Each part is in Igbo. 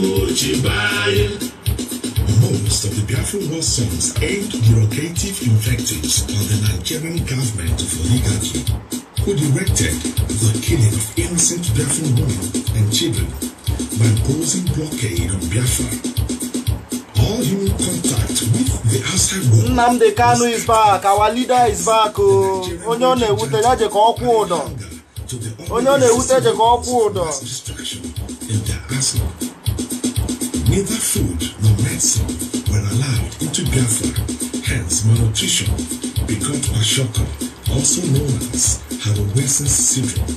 Most of the Biafran War songs aimed provocative invectives on the Nigerian government of oligarchy, who directed the killing of innocent Biafran women and children by imposing blockade on Biafra. All human contact with the outside world. Nnamdi Kanu is back, our leader is back. Oh. Onye ọ na-ewute ya je Onye ọ na-ewute je Neither food nor medicine were allowed into Biafra, hence malnutrition begot shocker. also known as Hanowesen syndrome.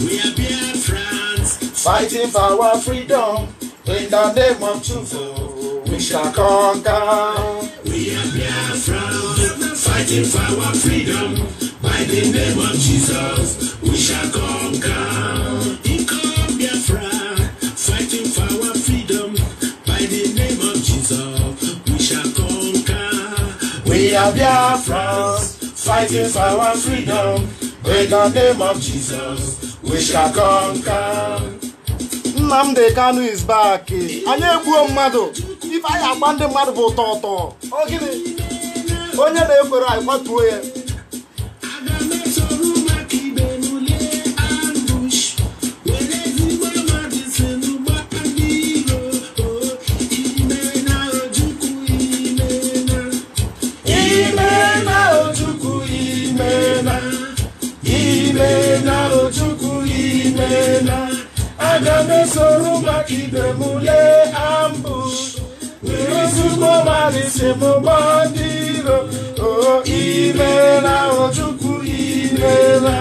We are Biafrans, fighting for our freedom. In the name of Chufo, we shall conquer. We are Biafrans, fighting for our freedom. By the name of Jesus, we shall conquer. We are Biafrans fighting for our freedom in the name of Jesus we shall conquer. Nnamdi Kanu is back. Anyị egbuo mmadụ ife anyị agba ndị mmadụ bụ ụtọ ụtọ. Ọ gịnị? Onye na-ekwere anyị kwatuo ya Ajami soru makide mule ambush. Irisuko marise mo bandiro. Oh ilera ojuku ilera.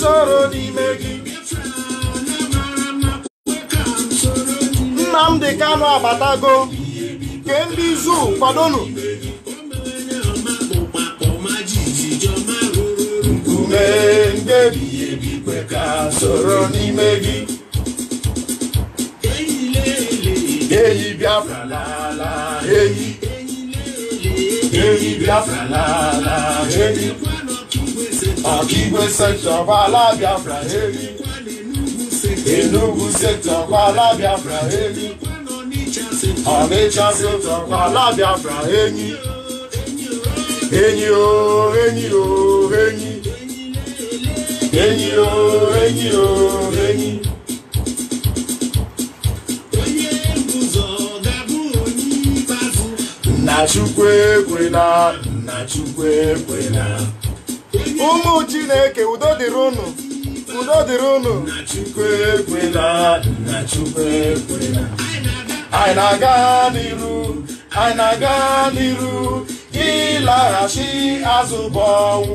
Sọ̀rọ̀ n'ime gị. Nnamdị Kanụ abatago, kee ndị zuu kwadonu. mee mkpebi ebi kwe ka soro n'ime gị eyi Biafra lala eyi eyi Biafra lala eyi ọkaigwe sektọ gbala Biafra eyi Enugu sektọ gbala Biafra eyi Ọnịcha sektọ gbala Biafra eyi enyi o enyi o enyi enyi o oh, enyi o oh, enyi onye ụzọ ga-abụ onye ikpeazụ nna chukwu ekwena nna chukwu ekwena ụmụ chineke udo dịrị unu udo dịrị unu nna chukwu ekwena nna chukwu ekwena anyị na-aga n'iru anyị na-aga n'iru ịlaghachi azụ bụ ọnwụ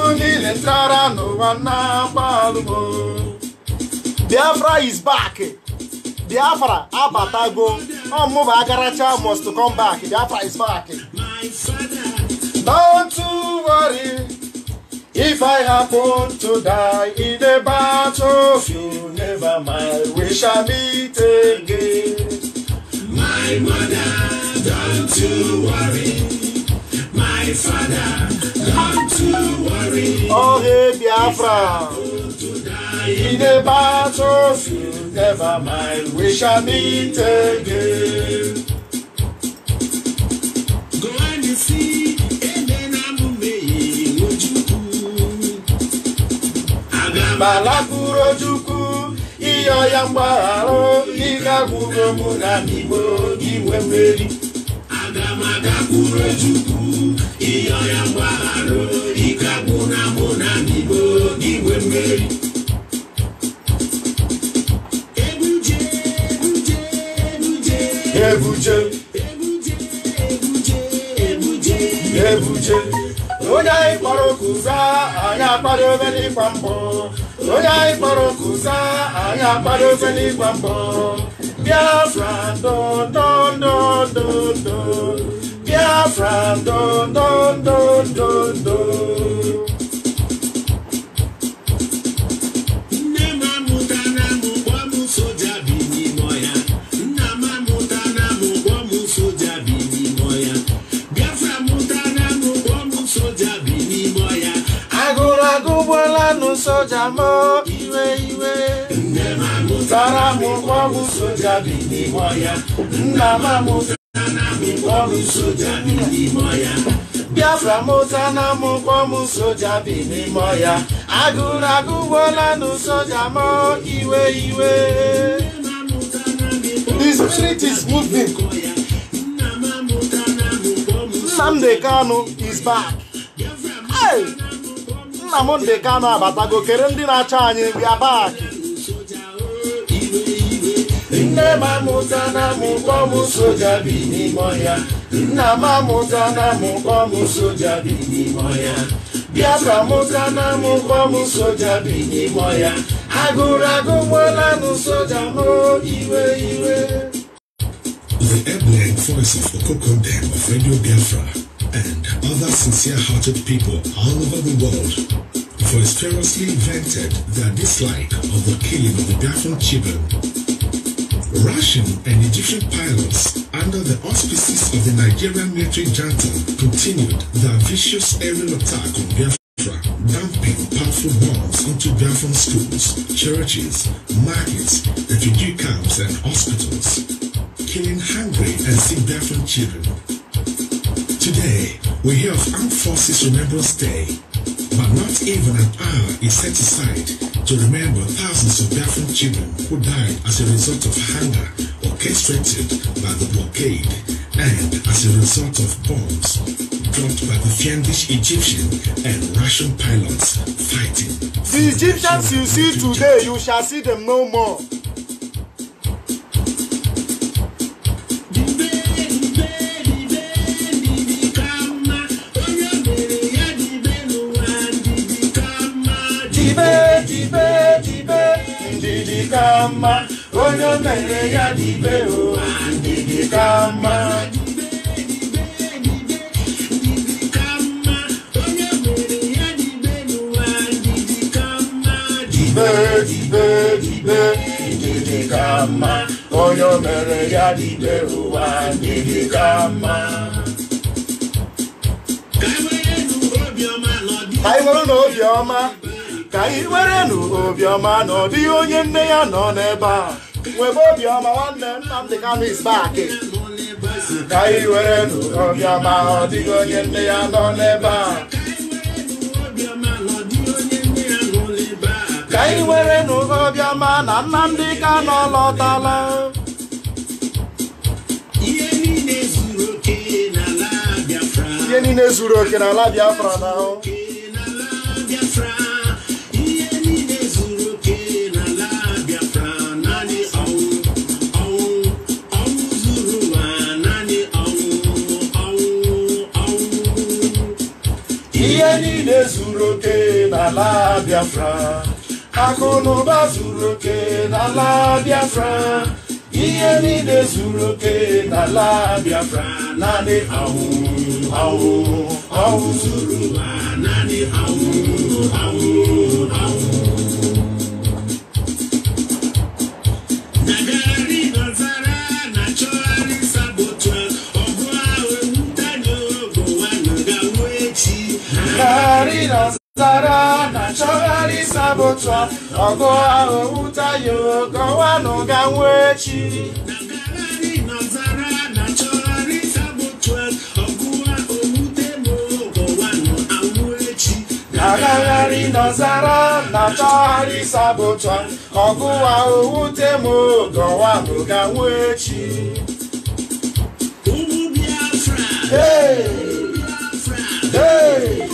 ụmụ niile tara n'ụwa na-agba alụmọ biafra is back biafra abatago ọmụba agaracha must come back biafra is back don't worry if i happen to die in a you never mind we shall meet again my mother don't you worry my father, not to worry. Oh, hey, Biafra. In the battlefield, never mind, we shall meet again. Go and you see. Balakuro Juku, Iyo Yambaru, Ika Guru Muna Nibo, Iwe Meri. kwuru chukwu ihe ọrịa mgbaghara ike agbụna agbụna bibo igwe mmeri ebuje ebuje ebuje onye anyị kpọrọ kụza anyị akpadobe n'ịgba mbọ onye anyị kpọrọ kụza anyị akpadobe n'ịgba mbọ Biafra ndụ ndụ ndụ ndụ. Abraham, don don. dun, dun, dun. soja mo. iwe iwe tara m ụgbọ bụ soja bini moya. ọhịa nna amụkpọm soja bi n'ime ọya Biafra mụta na amụkpọm soja bi n'ime ọya agụrụ agụgbola nụ soja ma iwe iwe The spirit is moving. Nnamdi Kanu is back. Hey! Nnamdi Kanu abatago kere ndị na-achọ anyị bịa baaki nne m amụta na mụkpọ m soja bi n'ime ọhịa nna na soja bi n'ime ọhịa mụta na soja bi n'ime ọhịa agụrụ agụ soja iwe iwe The ebullient voices of Kokondem of Radio Biafra and other sincere-hearted people all over the world vociferously vented their dislike of the killing of the Biafran children Russian and Egyptian pilots under the auspices of the Nigerian military junta continued their vicious aerial attack on Biafra, dumping powerful bombs into Biafran schools, churches, markets, refugee camps and hospitals, killing hungry and sick Biafran children. Today, we hear of Armed Forces Remembrance Day, but not even an hour is set aside to remember thousands of Biafran children who died as a result of hunger orchestrated by the blockade and as a result of bombs dropped by the fiendish Egyptian and Russian pilots fighting. The Egyptians you see today, you shall see them no more. kama onye mere ya dibe o ndidi kama dibe onye mere ya dibe ụwa ndidi kama anyị nwere na ka anyị werenụ obiọma na ọ dịghị onye nne ya nọ n'ebe a nwebe obiọma nwanne Nnamdị Kanụ isbaki ka anyị werenụ obiọma na ọ dịghị onye nne ya nọ n'ebe a ka anyị werenụ obiọma na Nnamdị Kanụ lọtala ihe niile zuru oke n'ala Biafra na ahụ ihe niile zuru oke n'ala Biafra akụ na ụba zuru oke n'ala Biafra ihe niile zuru oke n'ala Biafra naanị awụ awụ awụ zuru naanị awụ awụ awụ olisa bụ tụ ọgụ ahụ wụtayo kọwanụ ganwe echi agagharị n'ọzara na-achọgharị sabụtọ ọgụwa owute m gọwa bụ ganwe echi Hey! Hey!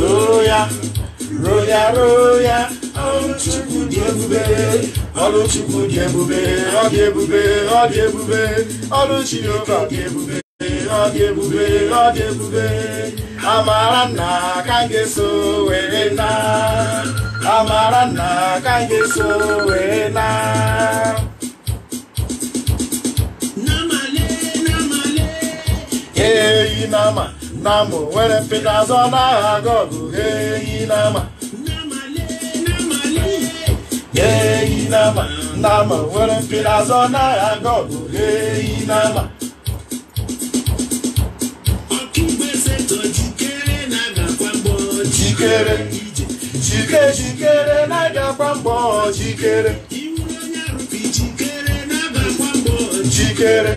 roo ya roo ya roo ya ọrụ chukwu dị ebube ọrụ chukwu dị ebube ọ dị ebube ọ dị ebube ọrụ chineke ọ dị ebube ọ dị ebube ọ dị ebube amara nna ka m ga-eso were na amara nna ka m ga-eso were na eyi na ama Namo were pedazo na agogo Hey nama Hey nama Namo were pedazo na agogo Hey nama Jikere Jike jikere na gakwa mbo Jikere Jikere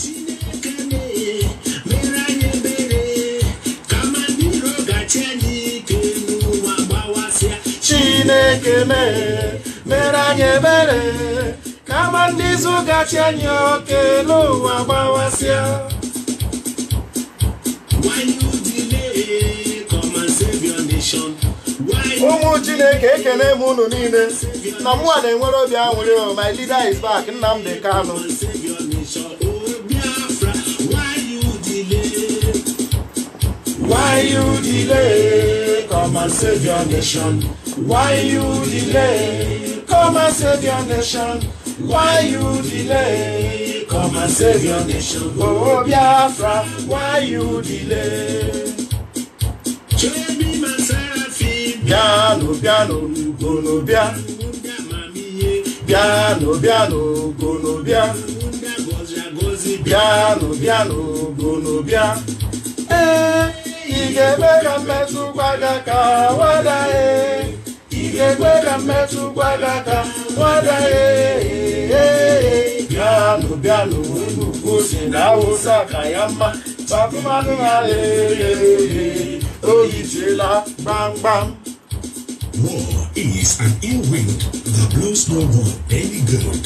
chineke mere mere anyị ebere kama ndị izu gachi anyị oke n'ụwa gbawasịa ụmụ chineke ekele m unu niile na mụnwa na-enwere obi aṅụrị oh, my leader is back Nnamdi oh, Why you delay? Come and nation. Why you delay? Come and save your nation. Why you delay? Come and save your nation. Oh Biafra, why you delay? Biano, biano, gono bia. Biano, biano, gono bia. piano, biano, gono bia. Eh, ị ga-eme ka mmetụ gbada ka wada eh igekweda mmetụ gwadaka gwada bịanụ bịanụ unu na awụsa ka ya mma bakụmanụ ha lere oyijiela War is an ill wind that blows no one any good.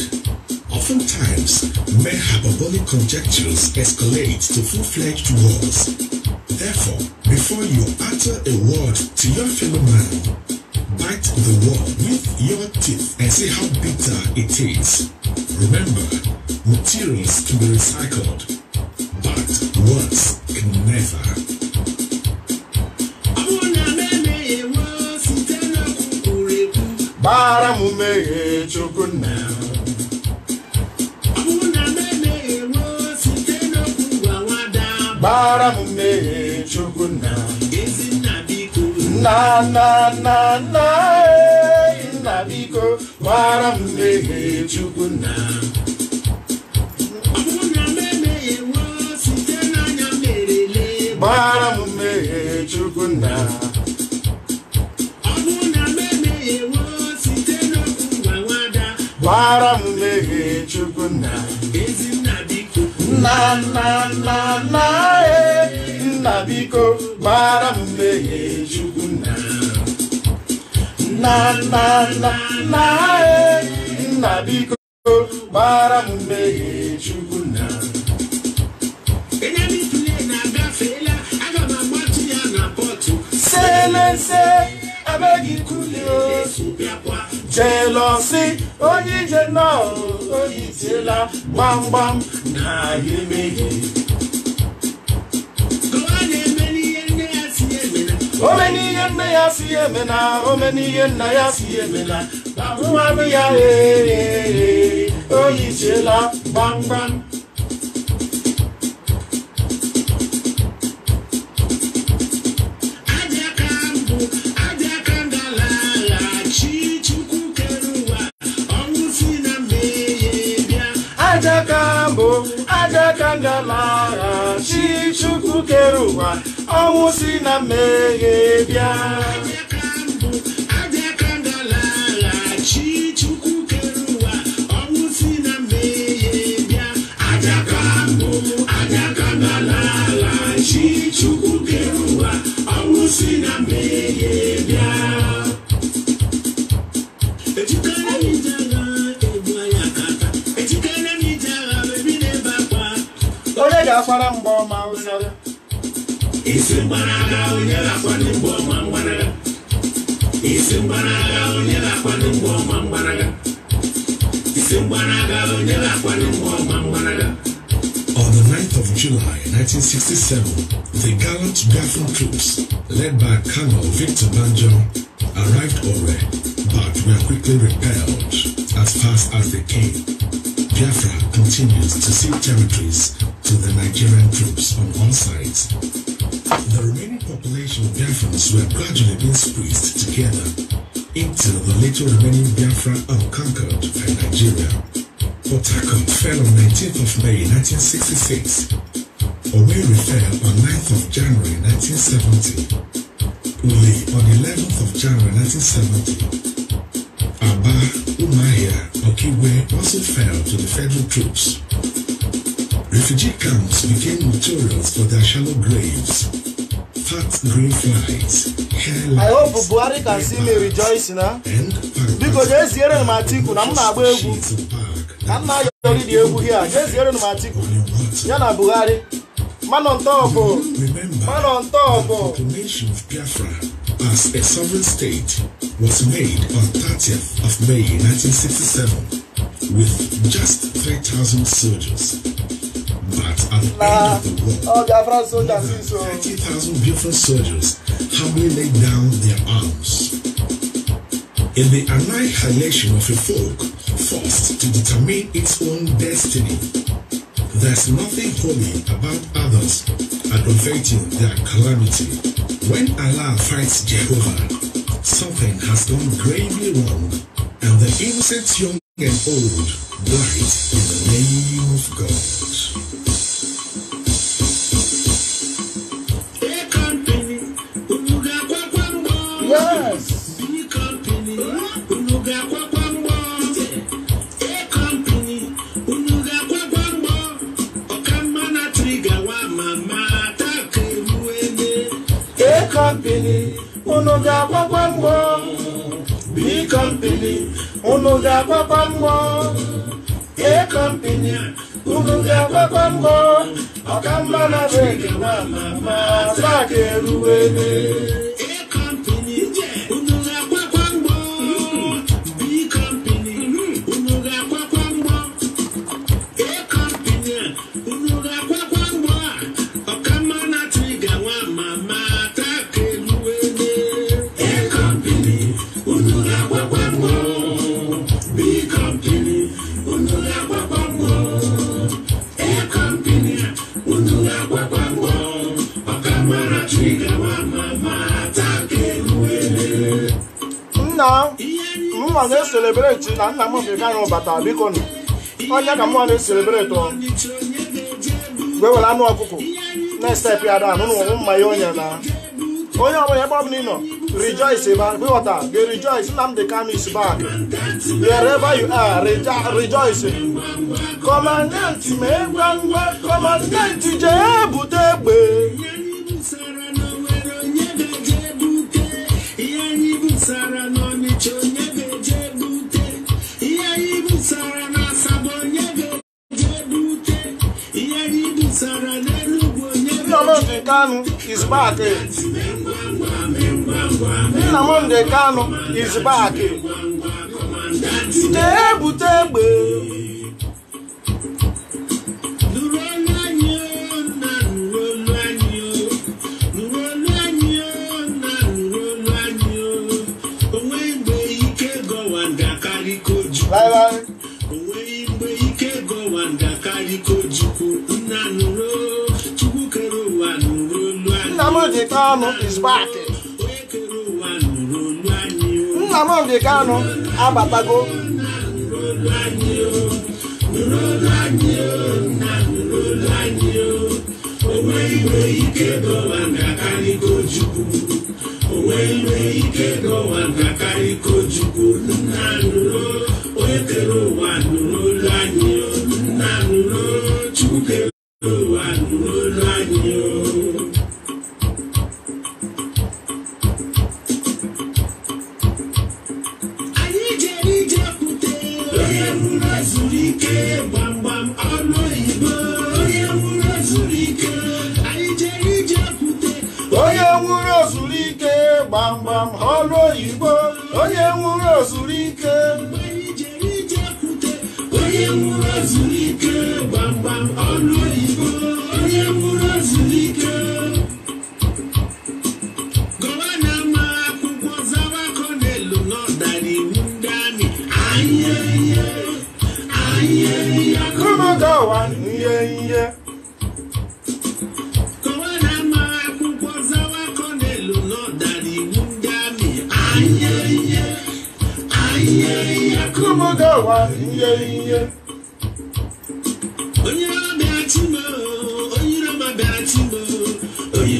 Oftentimes, mere hyperbolic conjectures escalate to full-fledged wars. Therefore, before you utter a word to your fellow man, your teeth and see how bitter it is. Remember, na na na na nna biko gbara m ya chukwu nna na na na na nna biko pọtụ. m mmehie chukwu nna selese abeghị Jealousy, oh you jealous, oh you jealous, bam bam, na ye nah you make it. Omeni yen na ya siye mena, omeni yen na ya siye mena, babu mami ya eh eh eh, oh you jealous, bam bam. aka ngalaghachi chukwu kere ụwa ọnwụ si na mmehie bịa akpara mgbe ọma ụsara isi mgbanaga onye na-akwado mgbe ọma mgbanaga isi mgbanaga onye na-akwado mgbe ọma mgbanaga isi mgbanaga onye na-akwado mgbe ọma mgbanaga On the 9th of July 1967, the gallant Biafran troops, led by Colonel Victor Banjo, arrived already, but were quickly repelled as fast as they came. Biafra continues to cede territories to the Nigerian troops on one side. The remaining population of Biafrans were gradually being squeezed together into the little remaining Biafra unconquered by Nigeria. Port Harcourt fell on 19th of May 1966. Owerri fell on 9th of January 1970. Uli on 11th of January 1970. Aba, Umaya, Okiwe also fell to the federal troops. Refugee camps became notorious for their shallow graves, fat grey flies, hair I hope Buhari can see me rejoicing, huh? Biko jeziere m Atiku na m na-agba egwu ka m na-ayọrị dị egwu hie a jeziere m Atiku ya na Buhari manọ ntọọbụ manọ ntọọbụ as a sovereign state was made on 30th of May 1967 with just 3,000 soldiers. But at the nah. end of the war, oh, more than 30,000 Biafran soldiers humbly laid down their arms. In the annihilation of a folk forced to determine its own destiny, there's nothing holy about others aggravating their calamity. When Allah fights Jehovah, something has gone gravely wrong, and the innocent young and old die in the name of God. company, uno ga papa mo. B company, uno ga papa mo. A company, uno ga papa mo. Ọ̀kan mọ́nà bẹ́ẹ̀ kí wọ́n máa máa na-eselebreti na nna m bekana bata biko nọ onye ka mụọ na-eselebreti ọ wee were anụ ọkụkọ na-estep ya da anụ n'ụwụ mmanya onye na onye ọbụla ebe ọbụla ị nọ rejoice ịghọta gị rejoice Nnamdi Kanu is back wherever you are rejoice kọmandanti ma egwa ngwa kọmandanti jee bute egbe Sarah Nnamdi Kanu is back. Nnamdi Kanu is back. Tebụ tebụ. Nnamdi Kanu is back. Nnamdi Kanu abatago. Onwe ike dọwa nkakarị kochukwu. Onwe ike dọwa nkakarị kochukwu. Nna nro, onye kere ụwa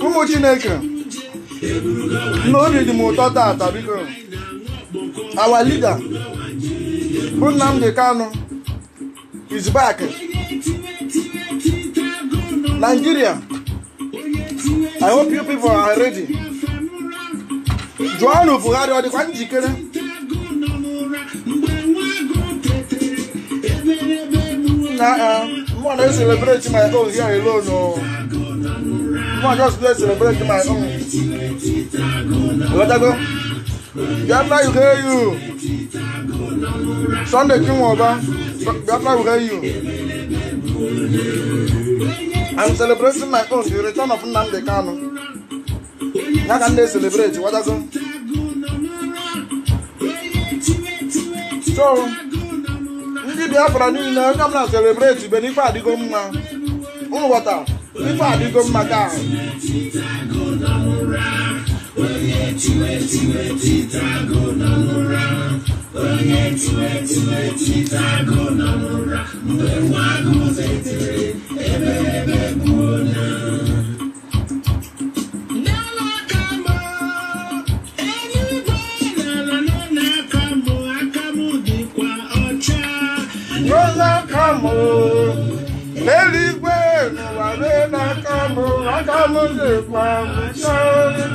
ụmụ chineke na obi dị m ụtọ tata biko our leader bụ Nnamdi Kanu is back Nigeria I hope you people are ready Joanu Buhari ọ dịkwa njikere na uh, mmụọ na-eselebreti my own here alone oh. Come on, just play celebrate my own. Let go. hear you. Sunday King Oba. Biafra will hear you. I'm celebrating my own, the return of Nnamdi Kanu. How can they celebrate? What does it? So, ndị Biafra niile onye ọbụla celebrate ibe n'ife adịgo mma ụmụ ghọtara ife adịgo mma gị ahụ mu ọjọ́ mu lè pa mu sáré.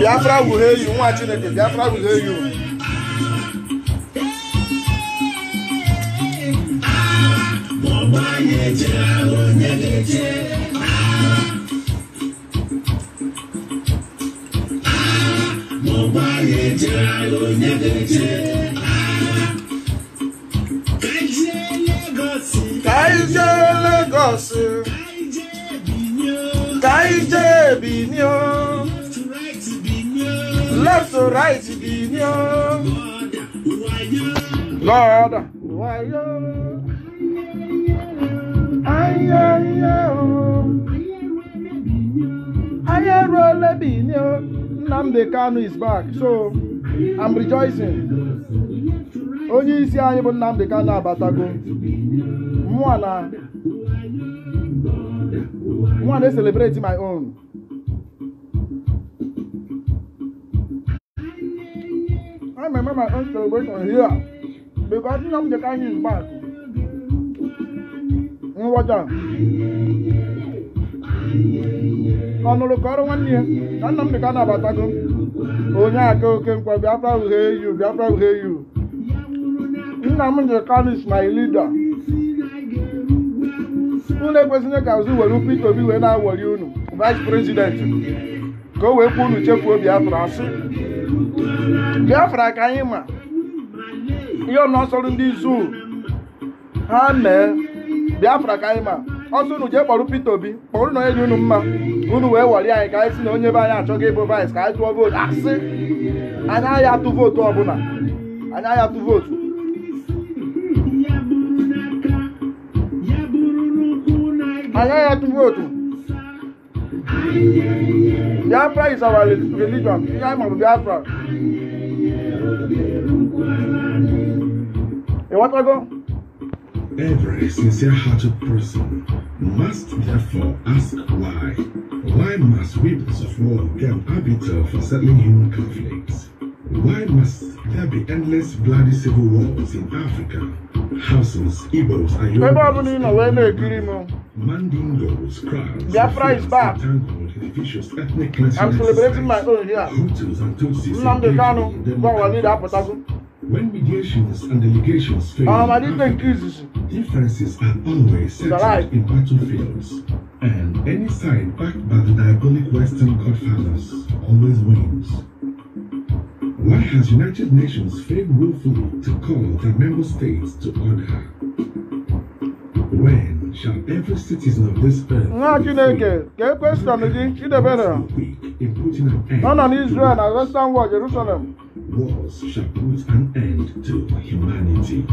Biafra wuru eyi nwa Chineke Biafra wuru eyi o. Ọgbanyere onye ga-eche. Ọgbanyere onye ga-eche. us. Kaije Binyo. Left to right Binyo. Lord, why you? Aye, aye, aye. Aye, role Binyo. Namde Kanu is back, so I'm rejoicing. Onye isi anyị bụ Nnamdi Kanu abatago. Mụ na one na celebrate my own I remember my own celebration here because nna m dị ka anyị back nwụwaja ọ nụrụ ka ọrụ nwanne ya na nna m dị ka onye aka oke nkwa Biafra uhie you Biafra uhie you nna m dị is my leader unu ekwesịghị ka azụ were Peter Obi wee na-awọri unu vice president ka o wee kwuo unu chefuo Biafra asị Biafra ka anyị ma ihe ọnọsọrụ ndị zuu ha mee Biafra ka anyị ma ọsọ unu jee kpọrọ Peter Obi kpọrọ na onye dị unu mma unu wee wọrị anyị ka anyị si na onye be anyị achọghị ịbụ vice ka anyị tụọ vootu asị anyị agha atụ vootu ọbụla anyị agha atụ vootu Another people too. Biafra is our religion. In time of Biafra. A what ago? Every sincere hearted person must therefore ask why. Why must we suffer and get for settling human conflicts? Why must there be endless bloody civil wars in Africa? Houses, Igbos, and Yorubas, Mandingos, crowds, Biafra is back. entangled I'm celebrating my own here. Hutus and Tutsis When mediations and delegations fail, um, differences are always settled in battlefields, and any side backed by the diabolic Western godfathers always wins. Why has United Nations failed willfully to call the member states to order? When shall every citizen of this earth nah, be free? Get question, you the better. In putting an end on Israel and Western world, Jerusalem. Wars shall put an end to humanity.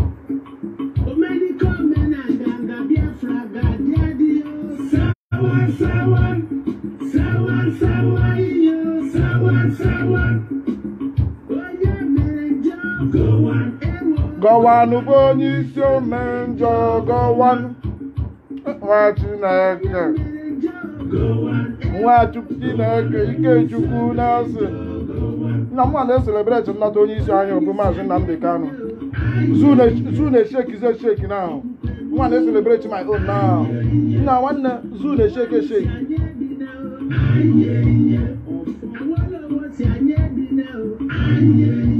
Someone, someone, someone, someone. gọwanụ bụ onye isi ome njọ gọwanụ nwa Chineke nwa Chineke Ikechukwu na-asị nna m na eselebreti nnata onye isi anyị bụ maazị Nnamdi Kanu zuna shekize sheki na ahụ nwa na-eselebreti my own na ahụ nna nwanne zuna sheke sheki Yeah.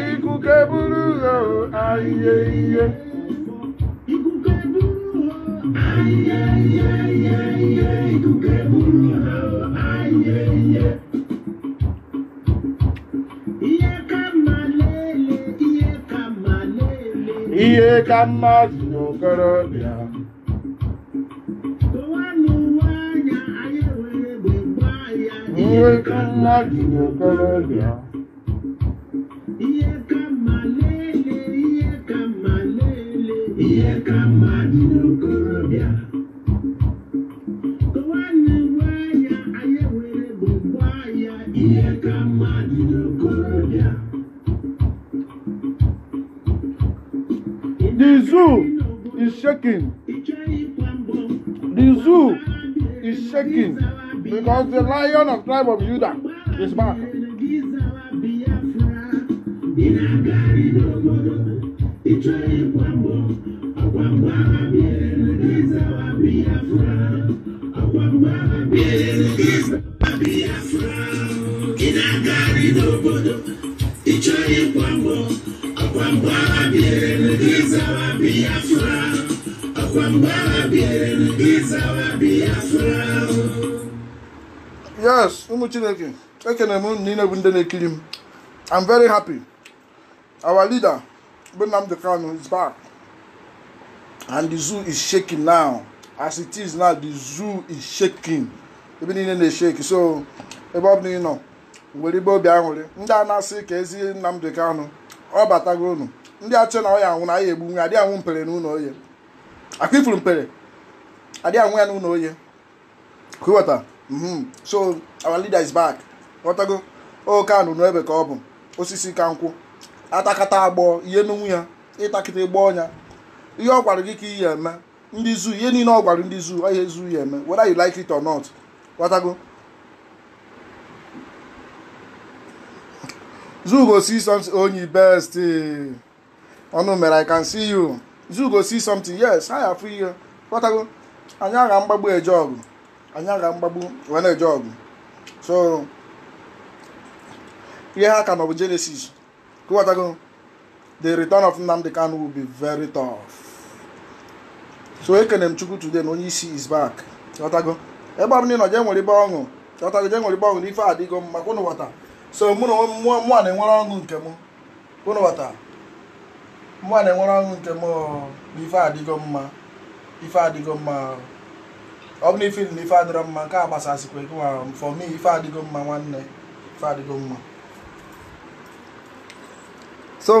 Ikú keburu lọ ayé. ka mmadụ na okorobịa nwe ka mmadụ na okorobịa zoo is shaking. The zoo is shaking because the lion of tribe of Judah is back. Ìjọ ìpamọ́, ọ̀pọ̀ àgbà bíi ẹ̀. ụmụ chineke ekene m na bụ ndị na-ekiri m i'm very happy our leader bụ Nnamdi Kanu is back and the zoo is shaking now as it is now ebe niile na-eshake so ebe ọ bụla ị nọ ibe obi aṅụrị ndị a na-asị ka ezi Kanu ọ batago unu ndị achọ na ọ anwụ na egbu adịghị anwụ mpere oye ifuru mpere adịghị anwụ ya oye mhm so our leader is back ghọtago oke anụnụ ebe ka ọ bụ osisi ka nkwụ atakata agbọ ihe n'onwe ya ịtakịta ịgba ọnya ihe ọ gwara gị ka ihe eme ndị zuu ihe niile ọ gwara ndị zuu ihe zuu ya eme whether you like it or not ghọtago zoo go see something onye best ọnụ mere i can see you zoo go see something yes ha ya afụ ihe ghọtago anyị agha mgbagbu eje ọgụ anyị aga mgbagbu wee na-eje ọgụ so ihe ha ka nọ bụ Genesis kụwatago the return of Nnamdi Kanu will be very tough so ekene m Chukwu today na onye isi is back chọtago ebe ọbụla ị nọ jee nwere ibe ọṅụ chọtago jee nwere ibe ọṅụ na ife adịgo mma kwụnụ wata so mụ na mmụọ mmụọ na-enwere ọṅụ nke m kwụnụ wata mmụọ na-enwere ọṅụ nke m na ife adịgo mma ife adịgo mma ọ bụ na ife ife adịrọ mma nke a gbasasịkwa ego nwa for me ife adịgo mma nwanne ife adịgo mma so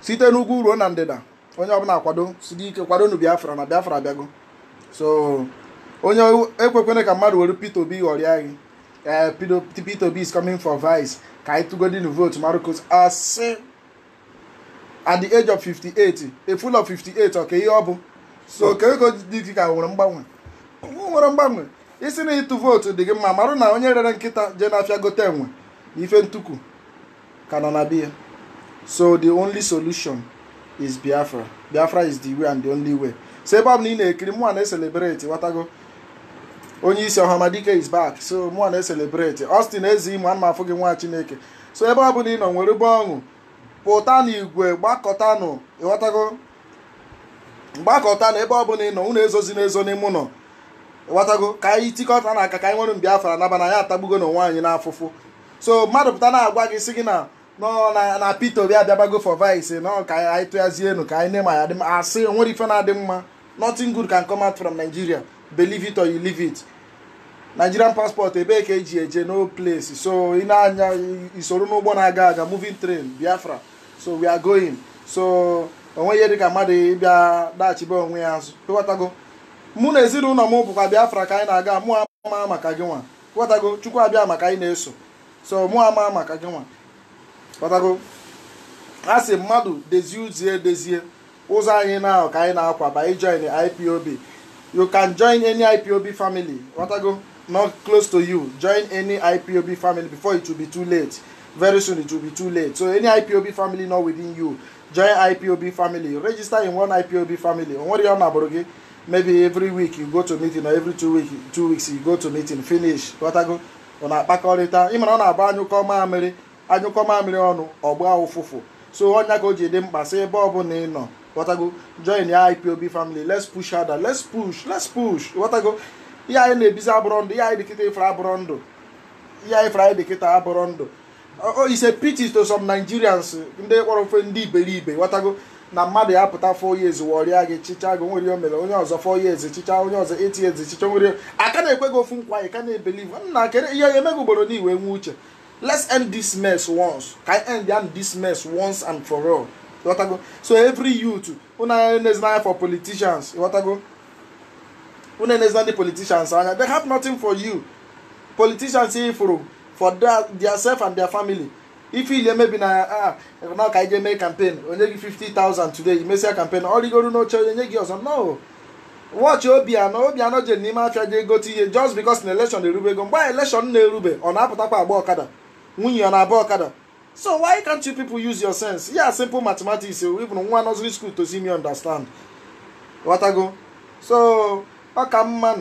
site n'ugwu ruo na ndịda onye ọbụla kwado site ike kwadonu biafra na biafra abịago so onye ekwekwere ka mmadụ were Peter Obi ghọrịa gị ee eh, Peter Obi is coming for vice ka anyị tụgodinu votu marcos asị at the age of 58 a full of 58 ọ ka ihe ọ bụ so ka ego dị ka nwere mgbanwe nwere mgbanwe isi na ịtụ vootu dị gị mma marụ na onye rere nkịta jee n'afịa gote enwe na ife ntuku ka nọ na biya so the only solution is biafra biafra is the way and the only way so ebe ọbụla ị na-ekiri mụ na-eselebreti watago onye isi dike is back so mụ na-eselebreti Austin eze imo ana m afụ gị nwa chineke so ebe ọbụla ị nọ nwere ube ọṅụ pụta n'igwe gbakọtanụ ịghọtago mgbakọta na ebe ọbụla ị nọ unu ezozi n'ezo n'ime ụlọ ghọtago ka anyị tikọta na aka ka anyị nwere mbiafra naba na ya atagbugo na onwe anyị so mmadụ pụta na-agwa gị sị gị na na Peter Obi abịabago for vice nọ ka anyị tụghazie enu ka anyị na-eme ya dị mma asị onwere ife na-adị mma nothing good can come out from Nigeria believe it or you leave it Nigerian passport ebee ka eji eje no place so ị na-anya isoro n'ụgbọ na-aga aga moving train Biafra so we are going so onweghị dịka mmadụ ịbịa daghachibe onwe ya azụ ịghọtago mụ na ezinụlọ m bụkwa Biafra ka anyị na-aga mụ amaa maka gị nwa ghọtago Chukwu abịa maka anyị na-eso so mụ amaa maka gị nwa ghọtago a sị mmadụ dezie uzie dezie ụzọ anyị na ka anyị na-akwaba ijoin IPOB you can join any IPOB family ghọtago not close to you join any IPOB family before it will be too late very soon it will be too late so any IPOB family not within you join IPOB family register in one IPOB family onwere ya ọ na-abụrụ gị maybe every week you go to meeting or every two week two weeks you go to meeting finish ghọtago ọ na-akpakọrịta ịmara ọ na-abụ anyụkọ mamịrị anyụkọ mamịrị ọnụ ọgba ụfụfụ so ọnya ka o ji dị mkpa sị ebe ọ ọbụla ị nọ ghọtago join ya IPOB family let's push other let's push let's push ghọtago ihe anyị na-ebizi abụrọ ndụ ihe anyị dịkịta ifere abụrọ ndụ ihe anyị fere anyị dịkịta abụrọ ndụ it's a to some Nigerians ndị kpọrọ ofe ndị iberibe ghọtago na mmadụ ya pụta four years wọrịa gị chịcha gị nwere o mere onye ọzọ four years chịcha onye ọzọ eight years chịcha nwere aka na-ekwe gị ofu nkwa ka na-ebelive nna kere ihe ya emeghị ugboro na iwe nwe uche let's end this mess once Can anyị end ya this mess once and for all ịghọtago so every youth unu na-enezi for politicians ịghọtago unu na-enezi ndị politicians anya they have nothing for you politicians ifuru for their, their self and their family ife ili emebi na na ah, ka anyị ga eme kampen onye gị 50,000 today mesịa kampen ọ oh, rigoro n'oche onye nye gị ọzọ no wọchị obi anọ jere n'ime afịa jee egote ihe just because na erube ego mgbe a election na-erube ọ na-apụtakwa agba ọkada nwunye ọ na-aba ọkada so why can't you people use your sense ya simple mathematics eh, even nwa nursery school to see me understand ghọtago so ọ ka mma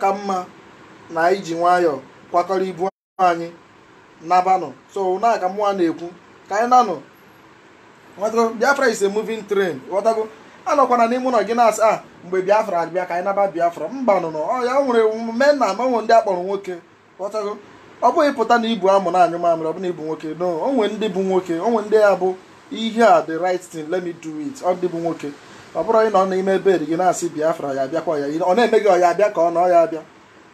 mma na anyị ji nwayọọ kwakọrọ ibu anyị nabanụ so na aka na-ekwu ka anyị nanụ biafra is a moving train ghọtago anọkwana n'ime ụlọ gị na-asị a ah, mgbe biafra abịa ka anyị naba biafra mba nụ ọya ya nwere mee na amanwe ndị akpọrọ nwoke ghọtago ọ bụghị pụta na ibu amụ na anyụ mamịrị ọ bụ na ibu nwoke no onwe ndị bụ nwoke onwe ndị ya bụ ihe a the right thing let me do it ọ dị bụ nwoke ọ bụrụ na ọ n'ime bed gị na-asị biafra ya abịakwa ya ọ na-eme gị ọ ya abịa ka ọ na ọ ya abịa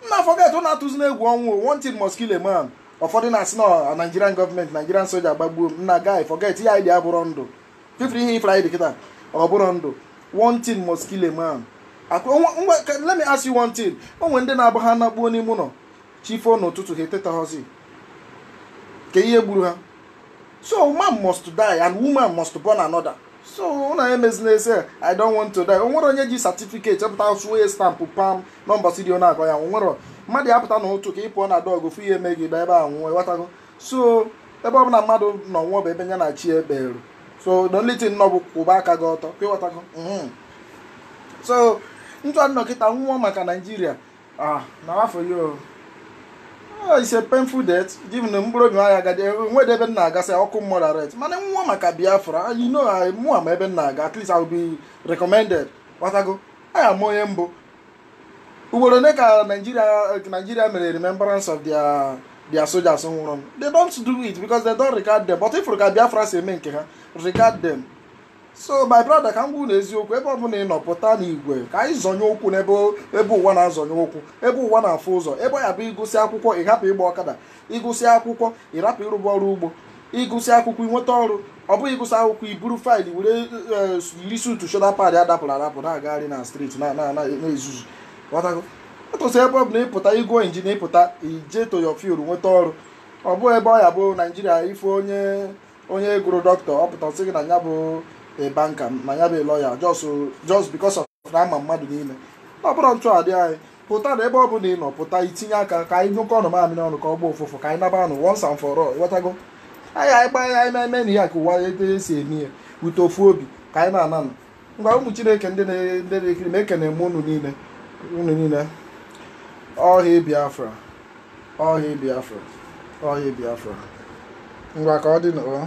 nna afọ gat na-atụzi na egwu ọnwụ wanted must man ụfọdụ na-asị na Nigerian gọọmenti Nigerian soja agbagbuo m na guy forget ya ịdị abụrụ ndụ fifri ihe ifra ịdị kịta ọ bụrụ ndụ one thing must kill a man let me ask you one thing onwe ndị na-abụ ha nakpuo n'ime ụlọ chifo n'ụtụtụ ha etetahọzi ka ihe gburu ha so man must die and woman must born another so na emezina emezin'ese, i don't want to die O onwere onye ji certificate chọpụta sụo stampụ pam nọmba si dị na-agọ ya o onwere mmadụ ya pụta na ụtụ ka ị pụọ na dọgụ fụ ihe megị ba ebe a nwụọ ịghọtago so ebe ọbụla mmadụ nọ nwụọ bụ ebe nya na chi eberu so the only thing nọ bụ kwụba aka gị ọtọ ka ịghọtago mm-hmm. so ntụ nnọkịta nwụọ maka naijiria ah, na afọ ya oh, ise painful death given mkpụrụ obi nwaanyị agadi enwede ebe nna agasị ọkụ moderate mana nwụọ maka biafra ah, you know mụa ma ebe nna aga at least I will be recommended ghọtago aya m onye mbụ ugboro ole ka Nigeria eh, Nigeria mere remembrance of their their soldiers nwụrụ they don't do it because they don't regard them but if ka Biafra si eme nke ha regard them so my brother ka m gwu na eziokwu ebe ọbụla ị nọ pụta n'igwe ka anyị zọnye ụkwụ n'ebe ebe ụwa na-azọnye ụkwụ ebe ụwa na-afụ ụzọ ebe ya bụ ịgụsị akwụkwọ ị hapụ ịgba ọkada ịgụsị akwụkwọ ị rapụ ịrụba ọrụ ugbo ịgụsị akwụkwọ ịnweta ọrụ ọ bụghị ịgụsị akwụkwọ iburu faịlụ were eh, eh, lisutu shoda pad adapụrụ adapụ na-agagharị na steeti na-ezuzu ghọtago atụsị ebe ọ bụ na ịpụta ịgụọ injinia ịpụta ije to your nweta ọrụ ọ bụghị ebe ọ ya bụ naijiria ife onye onye gụrụ dọkịta ọ pụta sị gị na ya bụ banka na ya bụ lọya just because na ama mmadụ n'ime ọ bụrụ ntụ adị anyị pụta na ebe ọ bụla ị nọ pụta itinye aka ka anyị nyụkọ ọnụ mamịrị ọnụ ka ọ gbụ ụfụfụ ka anyị naba anụ once and anyị anyị gbaa ya anyị eme na ka ụwa ete esi eme ya ute ofu obi ka anyị na-ananụ ngwa ụmụ chineke ndị na-ekiri ma ekene m unu niile unu niile ọhịa biafra ọhịa biafra ọhịa biafra ngwa ka ọ dị n'ụlọ